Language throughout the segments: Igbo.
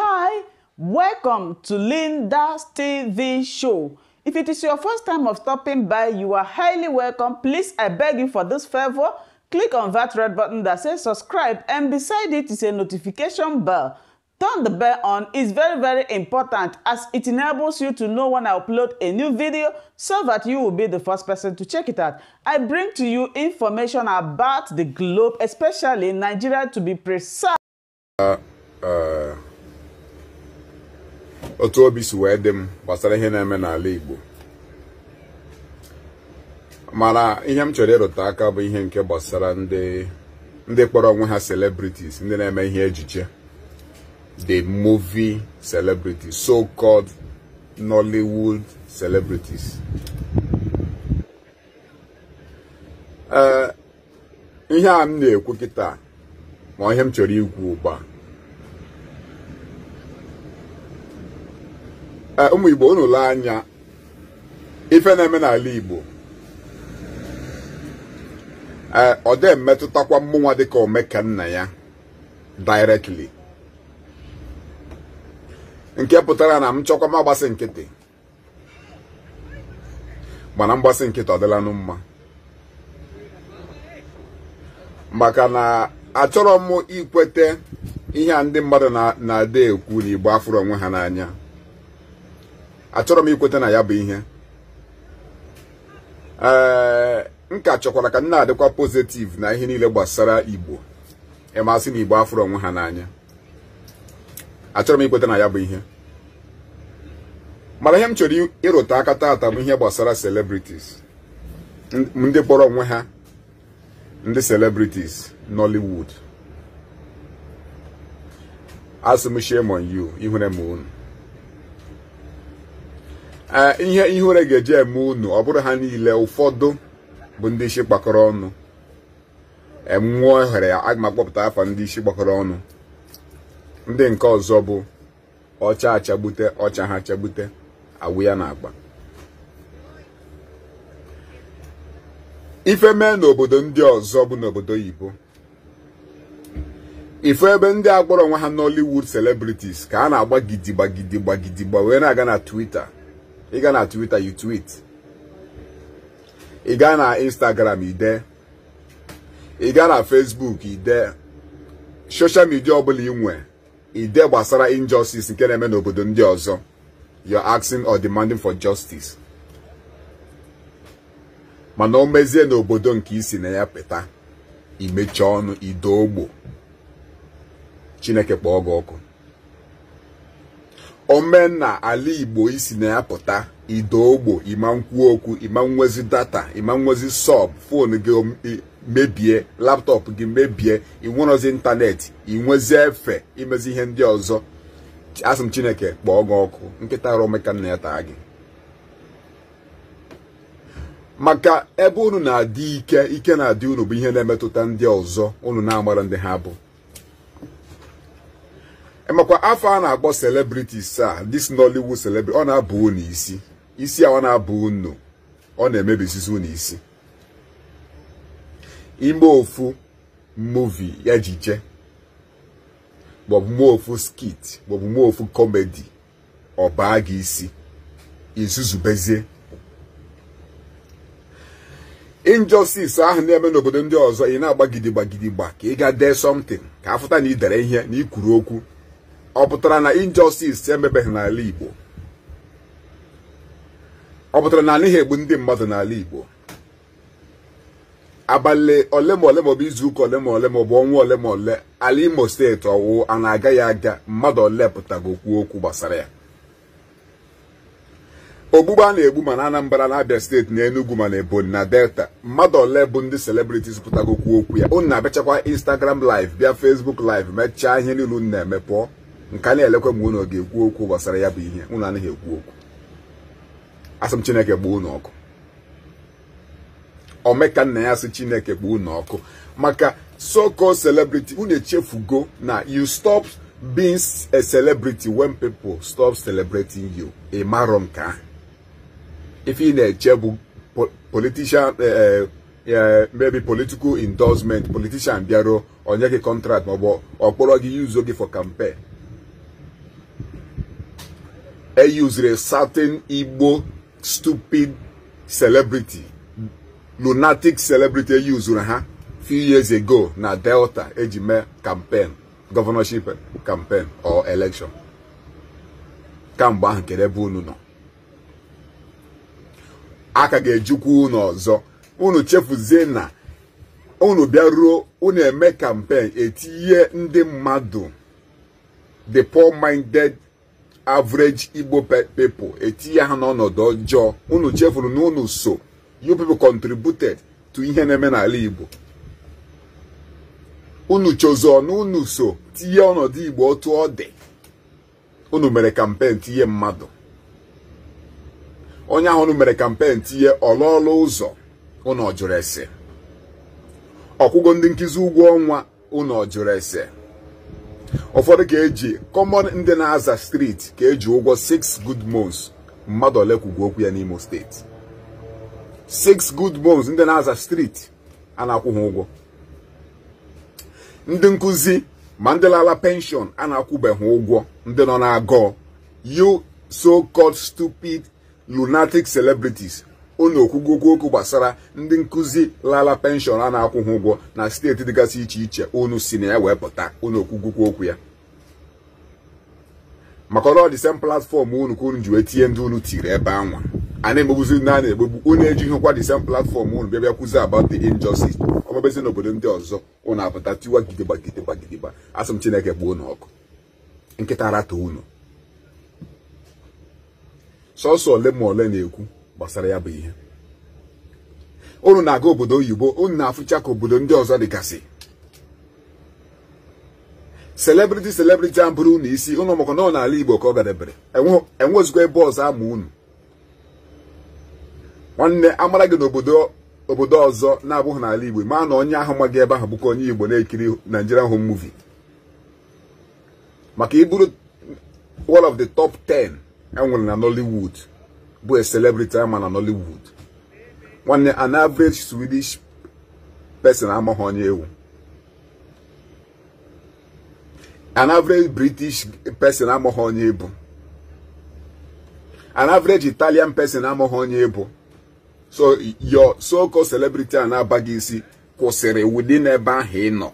Hi, welcome to Linda's TV show. If it is your first time of stopping by, you are highly welcome. Please, I beg you for this favor, click on that red button that says subscribe and beside it is a notification bell. Turn the bell on is very very important as it enables you to know when I upload a new video so that you will be the first person to check it out. I bring to you information about the globe, especially Nigeria to be precise. Uh, uh. otu obi si wee dị m gbasara ihe na-eme n'ala Igbo mana ihe m chọrọ ịrụta aka bụ ihe nke gbasara ndị ndị kpọrọ onwe ha celebrities ndị na-eme ihe ejiche the movie celebrities so-called Nollywood celebrities ee ihe a m na-ekwu kịta ma ihe m chọrọ igwu ugbu a Eh, ụmụ igbo unu anya ife na-eme n'ala igbo ee eh, ọ dị emetụtakwa mmụnwa dịka omekanna ya directly nke pụtara na m chọkwa m agbasị nkịtị mana mgbasị nkịtị ọ mma maka na achọrọ m ikweta ihe a ndị mmadụ na-adị ekwu na igbo afụrụ onwe ha n'anya achọrọ m ikweta na ya bụ ihe ee m ka chọkwara ka m na-adịkwa pozitiv na ihe niile gbasara igbo ịmasị na igbo afọrọ onwe ha n'anya achọrọ m ikweta na ya bụ ihe mara ihe m chọrọ ịrụta aka taata bụ ihe gbasara celebrities ndị kpọrọ onwe ha ndị celebrities Nollywood asị m on you m unu ihe ihe were ga-eji eme unu ọ bụrụ ha niile ụfọdụ bụ ndị isi gbakọrọ ọnụ enwụọ ohere ya aga m akpọpụta afa ndị isi gbakọrọ ọnụ ndị nke ọzọ bụ ọcha achagbute ọcha ha achagbute awụ ya na-agba ife mee n'obodo ndị ọzọ bụ n'obodo oyibo ife ebe ndị agbọrọ onwe ha Nollywood celebrities ka a na-agba gidigba gidigba gidigba wee na-aga na Twitter ị ga na Twitter you tweet ị gaa na Instagram ide ị gaa na Facebook ide ọbụla ị nwe ide gbasara injustice nke na-eme n'obodo ndị ọzọ you're asking or demanding for justice mana o mezie n'obodo nke isi na ya pụta imechi ọnụ ido ogbo Chineke kpọọ gị ọkụ omenna ala igbo isi na ya pụta idogbo imankwuo okwu imanwezi data imanwezi sọb fon gị mebie laptọpụ gị mebie inwerozi ịntanetị inwezi efe imezi ihe ndị ọzọ asị m chineke kpọọ gị ọkụ nkịta romeka nna ya taa gị maka ebe unu na-adị ike ike na-adị unu bụ ihe na-emetụta ndị ọzọ unu na-amara ndị ha bụ emekwa afọ a na-akpọ celebrities a this Nollywood celebrity ọ na-abụ unu isi isi a ọ na-abụ unu ọ na-emebisizi unu isi ime ofu muvi ejije maọbụ mee ofu skit maọbụ mee ofu kọmedi ọ baa gị isi izuzubezie injustice ahụ na-eme n'obodo ndị ọzọ ị na-agbagidigbagidigba ka ị ga dee something ka afụta na ị dere ihe na ikwuru okwu ọ pụtara na injustice emebeghị n'ala Igbo ọ pụtara na anaghị egbu ndị mmadụ n'ala Igbo abalị ole ma ole maọbụ izu ụka ole ma ole maọbụ ọnwa ole ma ole ala Imo steeti ọwụ a na-agaghị aga mmadụ ole pụtago okwu okwu gbasara ya ogbugbe a na-egbu ma na Anambra na Abia steeti na Enugu ma na Ebonyi na Delta mmadụ ole bụ ndị celebrities pụtago okwu okwu ya unu na-abịachakwa Instagram live bịa Facebook live mechaa ihe niile unu na-eme pụọ nke a na-elekwa mgbe ụnụ ga-ekwu okwu gbasara ya bụ ihe unu anaghị ekwu okwu asị chineke gbuo ụnụ ọkụ omeka nna ya asị chineke gbuo ụnụ ọkụ maka soko called celebrity unu echefugo na you stop being a celebrity when people stop celebrating you ị marọ nke ahụ ife ị na-eche bụ politician eh, eh, eh, maybe political endorsement politician bịaruo onye gị contract maọbụ ọkpọrọ gị yuzo gị for campaign used a certain Igbo stupid celebrity, lunatic celebrity e used ha few years ago na Delta ejime campaign, governorship campaign or election. Kamgbe ahụ kere ebe unu nọ. A ka ga ejikwu unu ọzọ. Unu chefuzie na unu bịaruo unu eme campaign etinye ndị mmadụ the poor minded average igbo pepl etinye ha n'ọnọdụ ọjọọ unu chefuru na unu so you people contributed to ihe na-eme n'ala igbo unu chọzọ na so tinye ọnọdụ igbo otu ọ dị unu mere kampen tinye mmadụ onye ahụ unu mere kampen tinye ọlọọlụ ụzọ unu ọjụrụ ese ọkwụgo ndị nkụzi ụgwọ ọnwa unu ọjụrụ ese ụfọdụ ka eji kọmọn ndị na-aza steeti ka eji ụgwọ 6 good months mmadụ ole kwugwu okwu ya n'Imo steeti 6 good months ndị na-aza steeti a na-akwụ ha ụgwọ ndị nkụzi ma ndị lala penshọn a na-akwụbeghị ụgwọ ndị nọ na agụụ you so-called stupid lunatic celebrities unu okwugokwu okwu gbasara ndị nkụzi lala penshọn a na-akwụ ụgwọ na steeti dịgasị iche iche unu si na ya wee pụta unu okwugokwu okwu ya maka ọ dị platfọm unu ka unu ji wee tinye ndị unu tiri ebe anwa a na-egbegbuzi ndị a na-egbegbu unu ejighị nkwa dị platfọm unu bịa bịa kwuzi about the injustice ọmebezi n'obodo ndị ọzọ unu apụta tiwa gidigba gidigba gidigba asị m chineke gbuo unu ọkụ nkịta rata unu sọsọ ole ma ole na-ekwu gbasara ya bụ ihe unu na-aga obodo oyibo unu na-afụcha ka obodo ndị ọzọ dịgasị selebriti selebriti a bụrụ unu isi ụnụ maka na ọ n'ala igbo ka ọ gadebere enwezikwa ebe ọzọ ama unu nwanne amara gị n'obodo obodo ọzọ na-abụghị n'ala igbo maa na onye ahụ maghị ebe ahụ bụkwa onye igbo na-ekiri Nigerian home movie maka iburu one of the top 10 enwere na Nollywood bụ a celebrity ama na Nollywood nwanne an average Swedish person amaghị onye ewu an average British person amaghị onye ebu an average Italian person amaghị onye ebu so your so-called celebrity a na-abaghị isi kwụsịrị within ebe ahụ ị nọ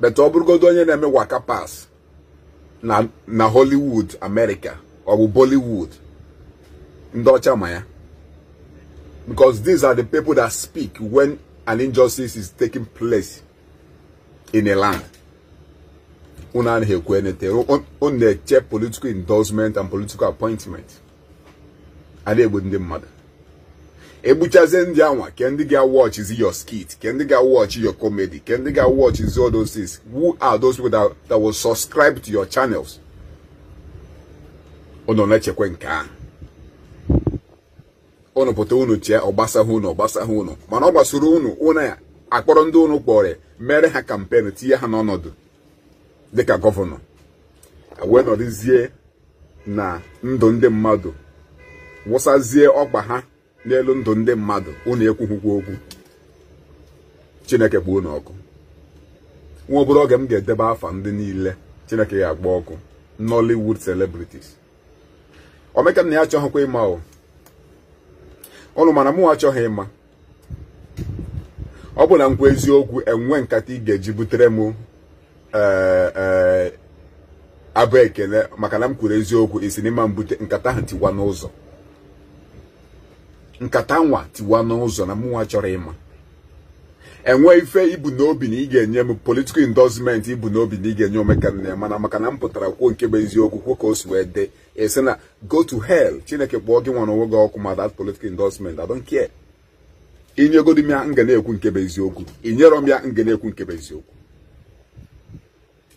bete ọ bụrụgodo onye na-eme waka pass na Hollywood America ọ bụ Bollywood ndị because these are the people that speak when an injustice is taking place in a land unu anaghị ekwu political endorsement and political appointment a na-egbu ndị matter. egbuchazie ndị anwa ke ndi your skit ke ndị ga-watch your comedy ke ndi watch is all those things who are those people that, that will subscribe to your channels unu na-echekwa nke ahụ unu pụta unu tie ọgbasahụ unu ọgbasahụ unu mana ọ gbasoro unu unu akpọrọ ndị unu kpọrọ mere ha kampenu tinye ha n'ọnọdụ dịka gọvanọ wee nọrịzie na ndụ ndị mmadụ wụsazie ọgba ha n'elu ndụ ndị mmadụ unu ekwughịkwa okwu chineke kpoo unu nwa obere oge m ga-edebe afa ndị niile chineke ya agba ọkụ nollywood celebrities omekana na ya achọghịkwa ịma o ọnụ mana mụ achọghị ịma ọ bụ na nkwa eziokwu enwe nkata ị ga-eji butere m eh, eh, abụ ekele maka na m kwuru eziokwu isi n'ime mbute nkata ahụ tiwa n'ụzọ nkata nwa tiwa n'ụzọ na mụnwa chọrọ ịma enwe ife ibu n'obi na ị ga-enye m political endorsement ibu n'obi na ị ga-enye omekanna mana maka na m pụtara kwuo nke bụ eziokwu kwuo ka o si wee dị esi na go to hell chineke kpọọ gị nwere n'onwe gị ọkụ ma that political endorsement I don't care m ya nga na-ekwu nke bụ eziokwu inyero m ya nga na-ekwu nke bụ eziokwu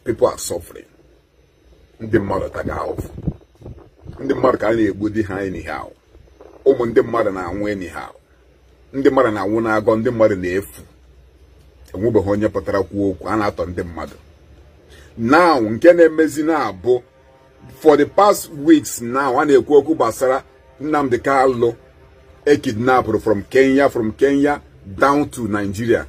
people are suffering ndị mmadụ taga ahụfụ ndị mmadụ ka a na-egbu di ha anyhow ụmụ ndị mmadụ na-anwụ anyhow ndị mmadụ na-anwụ n'agọ ndị mmadụ na-efu enwebeghị onye pụtara kwuo okwu a na-atọ ndị mmadụ now nke na-emezi na-abụ for the past weeks now a na-ekwu okwu gbasara Nnamdi kalụ ekidnapụrụ from Kenya from Kenya down to Nigeria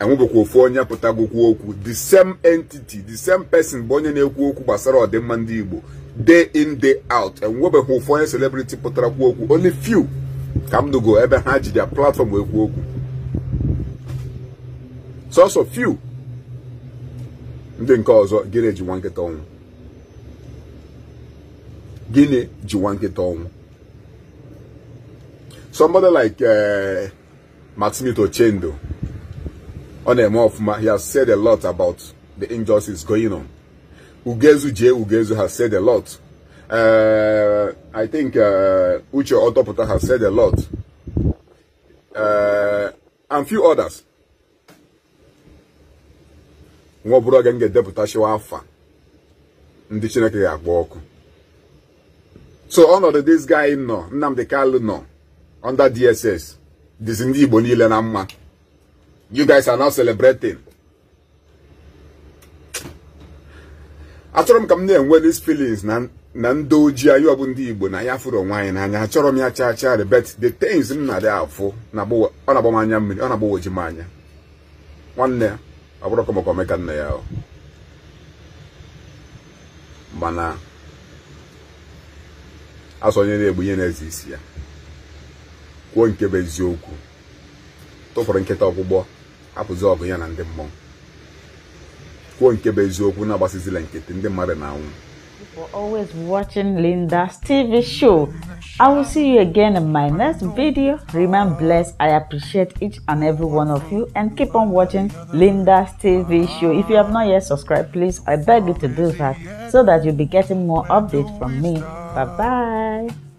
enwebekwa ofu onye kwuo okwu the same entity the same person bụ onye na-ekwu okwu gbasara ọdịmma ndị Igbo day in day out enwebeghị ofu onye celebrity pụtara kwu okwu only few ka m ebe ha ji platform ekwu okwu also few ndị nke ọzọ gịnị ji nwa nkịta ọnwụ gịnị ji nwa nkịta ọnwụ somebody like uh, Chendo on ọ na-eme ọfụma he has said a lot about the injustice going on Ugezu J. Ugezu has said a lot uh, I think eh, Uche Otoputa has said a lot uh, and few others nwa ọbụla oge m ga-edepụta shiwa afa ndị chineke ga-agba ọkụ so ọnọdụ dis guy nọ Nnamdi Kanu nọ under DSS dizi ndị Igbo niile na mma you guys are now celebrating achọrọ m ka m na-enwe these feelings na na ndị ojii anyị ọbụ ndị Igbo na ya furu onwe anyị n'anya achọrọ m ya chaa chaa rebet the things m na-adị afụ ọ na-agbawa anya mmiri ọ na oji m anya nwanne ya ọ bụrụ ka maka omeka nna ya mana asọ onye na-egbu ihe na-eze isi ya kwuo nke bụ eziokwu tụfụrụ nkịta ọgbụgbọ hapụzi ọgụ ya na ndị mmụọ kwuo nke bụ eziokwu na-agbasizila nkịtị ndị mmadụ na-anwụ for always watching Linda's TV show. I will see you again in my next video. Remain blessed. I appreciate each and every one of you and keep on watching Linda's TV show. If you have not yet subscribed, please, I beg you to do that so that you'll be getting more updates from me. Bye-bye.